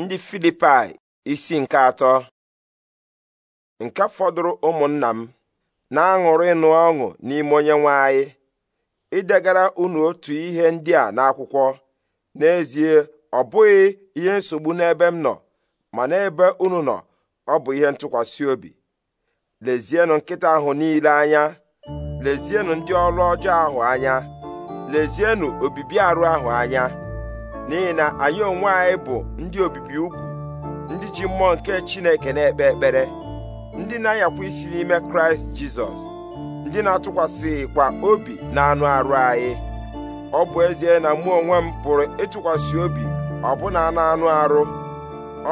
ndị filipai isi nke atọ nke fọdụrụ ụmụnna m na-aṅụrụ ịnụ ọṅụ n'ime onye nwe anyị idegara unu otu ihe ndị a n'akwụkwọ n'ezie ọ bụghị ihe nsogbu n'ebe m nọ ma n'ebe unu nọ ọ bụ ihe ntụkwasị obi lezienụ nkịta ahụ niile anya lezienụ ndị ọrụ ọjọọ ahụ anya lezienụ obibi arụ ahụ anya n'ihi na anyị onwe anyị bụ ndị obibi ugwu ndị ji mmụọ nke Chineke na-ekpe ekpere ndị na-anyakwa isi n'ime Kraịst Jizọs ndị na-atụkwasịkwa obi na anụ arụ anyị ọ bụ ezie na mụ onwe m pụrụ ịtụkwasị obi ọbụna na anụ arụ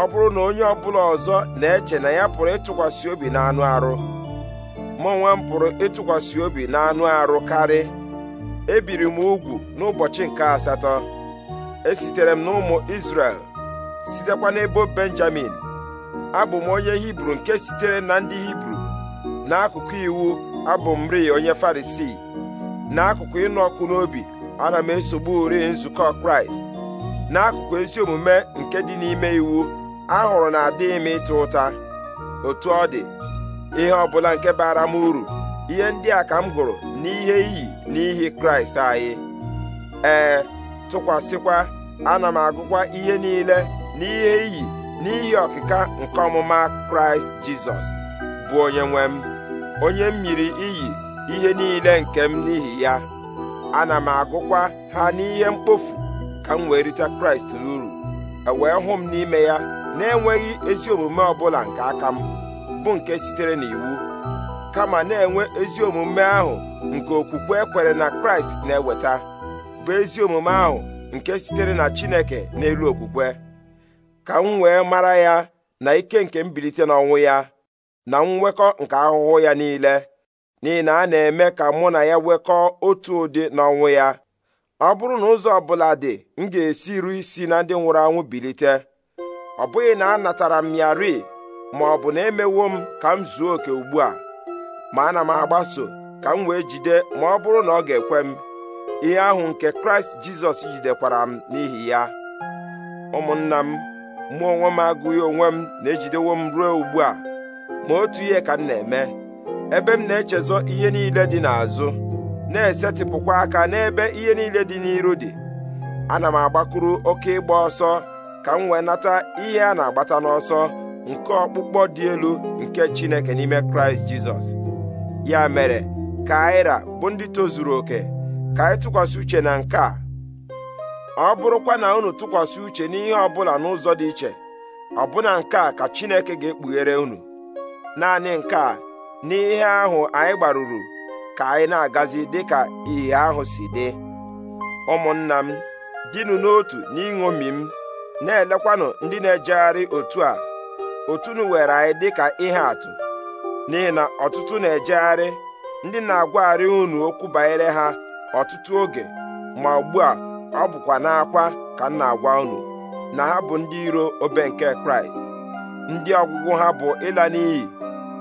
ọ bụrụ na onye ọbụla ọzọ na-eche na ya pụrụ ịtụkwasị obi na anụ arụ mụ onwe m pụrụ ịtụkwasị obi na anụ arụ karị ebiri m ugwu n'ụbọchị nke asatọ esitere m n'ụmụ isrel sitekwa n'ebo Benjamin abụ m onye Hibru nke sitere na ndị Hibru n'akụkụ iwu abụ m ri onye Farisii n'akụkụ ịnụ ọkụ n'obi ana m esogbu ri nzukọ Kraịst n'akụkụ ezi omume nke dị n'ime iwu ahụrụ na adịghị m ịta ụta otu ọ dị ihe ọ bụla nke bara m uru ihe ndị a ka m gụrụ n'ihe iyi n'ihi Kraịst anyị ee tụkwasịkwa ana m agụkwa ihe niile n'ihe iyi n'ihi ọkịka nke ọmụma kraịst jizọs bụ onye nwe m onye m miri iyi ihe niile nke m n'ihi ya ana m agụkwa ha n'ihe mkpofu ka m wee rite kraịst n'uru ewee hụ m n'ime ya na-enweghị ezi omume ọbụla nke aka m bụ nke sitere n'iwu kama na-enwe ezi omume ahụ nke okwukwe ekwere na kraịst na-eweta bụ ezi omume ahụ nke sitere na Chineke n'elu okwukwe ka m wee mara ya na ike nke mbilite n'ọnwụ ya na mwekọ nke ahụhụ ya niile n'ihi na a na-eme ka mụ na ya nwekọọ otu ụdị n'ọnwụ ya ọ bụrụ na ụzọ ọbụla dị m ga-esi ruo isi na ndị nwụrụ anwụ bilite ọ bụghị na anatara m ya ri ma ọ bụ na emewo m ka m zuo oke ugbu a ma ana m agbaso ka m wee jide ma ọ bụrụ na ọ ga-ekwe m ihe ahụ nke kraịst jizọs jidekwara m n'ihi ya ụmụnna m mụ onwe m agụghị onwe m na-ejidewo m ruo ugbu a ma otu ihe ka m na-eme ebe m na-echezọ ihe niile dị n'azụ na-esetịpụkwa aka n'ebe ihe niile dị n'iru dị ana m agbakuru oke ịgba ọsọ ka m wee nata ihe a na-agbata n'ọsọ nke ọkpụkpọ dị elu nke chineke n'ime kraịst jizọs ya mere ka bụ ndị tozuru oke ka anyị tụkwasị uche na nke a ọ bụrụkwa na unu tụkwasị uche n'ihe ọ bụla n'ụzọ dị iche ọbụna nke a ka Chineke ga-ekpughere unu naanị nke a n'ihe ahụ anyị gbaruru ka anyị na-agazi dịka ihe ahụ si dị ụmụnna m dịnụ n'otu n'iṅomi m na-elekwanụ ndị na-ejegharị otu a otunu were anyị dịka ihe atụ n'ihi na ọtụtụ na-ejegharị ndị na-agwagharị unu okwu banyere ha ọtụtụ oge ma ugbu a ọ bụkwa n'akwa ka m na-agwa unu na ha bụ ndị iro obe nke kraịst ndị ọgwụgwụ ha bụ ịla n'iyi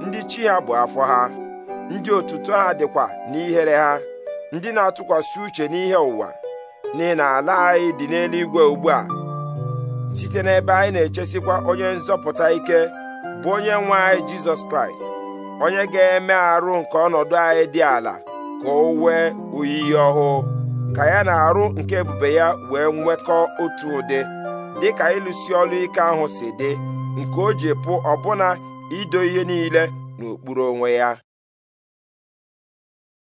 ndị chi ha bụ afọ ha ndị otuto ha dịkwa n'ihere ha ndị na-atụkwasị uche n'ihe ụwa n'ihi na ala anyị dị n'eluigwe ugbu a site n'ebe anyị na-echesikwa onye nzọpụta ike bụ onye nwe anyị jizọs kraịst onye ga-eme arụ nke ọnọdụ anyị dị ala ka o wee oyiyi ọhụụ ka ya na arụ nke ebube ya wee nwekọ otu ụdị dịka ịlụsi ọrụ ike ahụ si dị nke o ji pụ ọbụna ido ihe niile n'okpuru onwe ya